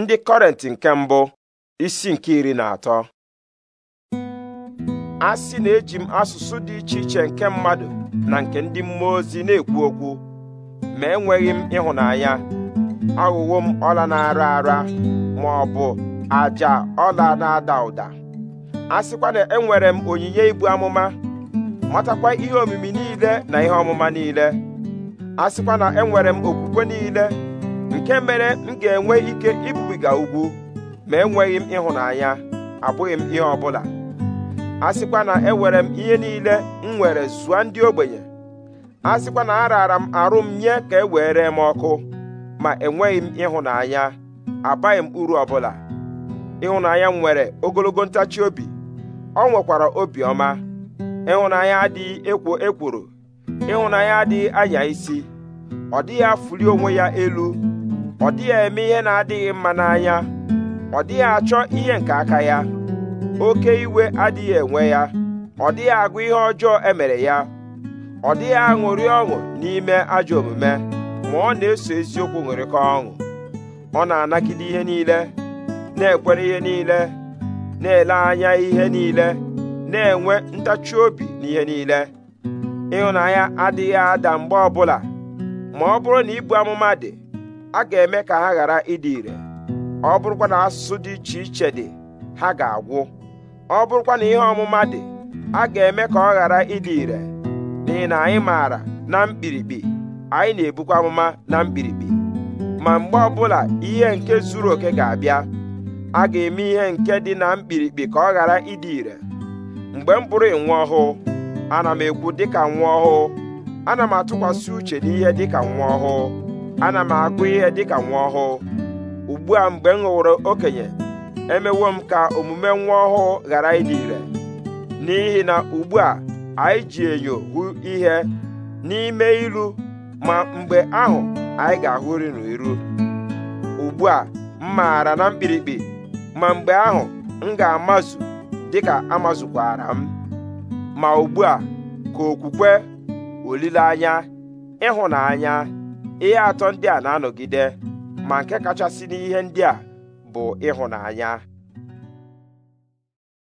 ndị kọrenti nke mbụ isi nke iri na atọ a sị na eji m asụsụ dị iche iche nke mmadụ na nke ndị mmụọ ozi na-ekwu okwu ma enweghị m ịhụnanya aghụghọ m ọla na-ara ara ma ọ bụ aja ọla na-ada ụda a sịkwa na enwere m onyinye ibu amụma matakwa ihe omimi niile na ihe ọmụma niile a sịkwa na enwere m okwukwe niile nke mere m ga-enwe ike ibubiga ugwu ma enweghị m ịhụnanya abụghị m ihe ọbụla a sịkwa na ewere m ihe niile m nwere zụa ndị ogbenye a sịkwa na araara m arụ m nye ka e were m ọkụ ma enweghị m ịhụnanya abaghị m uru ọbụla ịhụnanya m nwere ogologo ntachi obi ọ nwekwara obiọma ịhụnanya adịghị ekwo ekworo ịhụnanya adịghị anya isi ọ dịghị afụli onwe ya elu ọ dịghị eme ihe na-adịghị mma n'anya ọ dịghị achọ ihe nke aka ya oke iwe adịghị enwe ya ọ dịghị agụ ihe ọjọọ emere ya ọ dịghị aṅụrị ọṅụ n'ime ajọ omume ma ọ na-eso eziokwu ṅụrịkọ ọṅụ ọ na-anagide ihe niile na-ekwere ihe niile na-ele anya ihe niile na-enwe ntachi obi n'ihe niile ịhụnanya adịghị ada mgbe ọbụla ma ọ bụrụ na ibu amụma dị a ga-eme ka ha ghara ịdị ire ọ bụrụkwa na asụsụ dị iche iche dị ha ga-agwụ ọ bụrụkwa na ihe ọmụma dị a ga-eme ka ọ ghara ịdị ire n'ihi na anyị maara na mkpirikpi anyị na-ebukwa amụma na mkpirikpi ma mgbe ọbụla ihe nke zuru oke ga-abịa a ga-eme ihe nke dị na mkpirikpi ka ọ ghara ịdị ire mgbe m kpụrụ nwa ọhụụ ana m ekwu dịka nwa ọhụụ ana m atụkwasị uche n'ihe dịka nwa ọhụụ ana m agụ ihe dịka nwa ọhụụ ugbu a mgbe m ghọrọ okenye emewo m ka omume nwa ọhụụ ghara ịdị ire n'ihi na ugbu a anyị ji enyo hụ ihe n'ime ilu ma mgbe ahụ anyị ga-ahụri n'iru ugbu a m maara na mkpirikpi ma mgbe ahụ m ga-amazu dịka amazukwara m ma ugbu a ka okwukwe olileanya ịhụnanya ihe atọ ndị a na-anọgide ma nke kachasị n'ihe ndị a bụ ịhụnanya